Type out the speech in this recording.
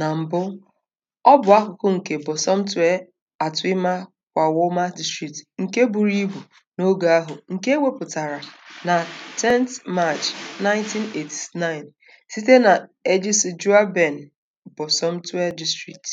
Na mbụ, ọ bụ akụkụ nke Bọsọmtwi kwa kwawoma District nke buru ibu n'oge ahụ nke ewepụtara na 10th March 1989 site na Ejisi ben Bosomtwi District.